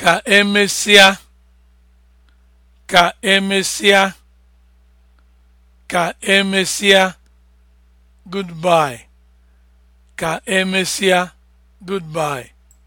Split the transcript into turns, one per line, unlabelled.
ka emesịa ka emesịa ka emesịa goodbye ka emesịa goodbye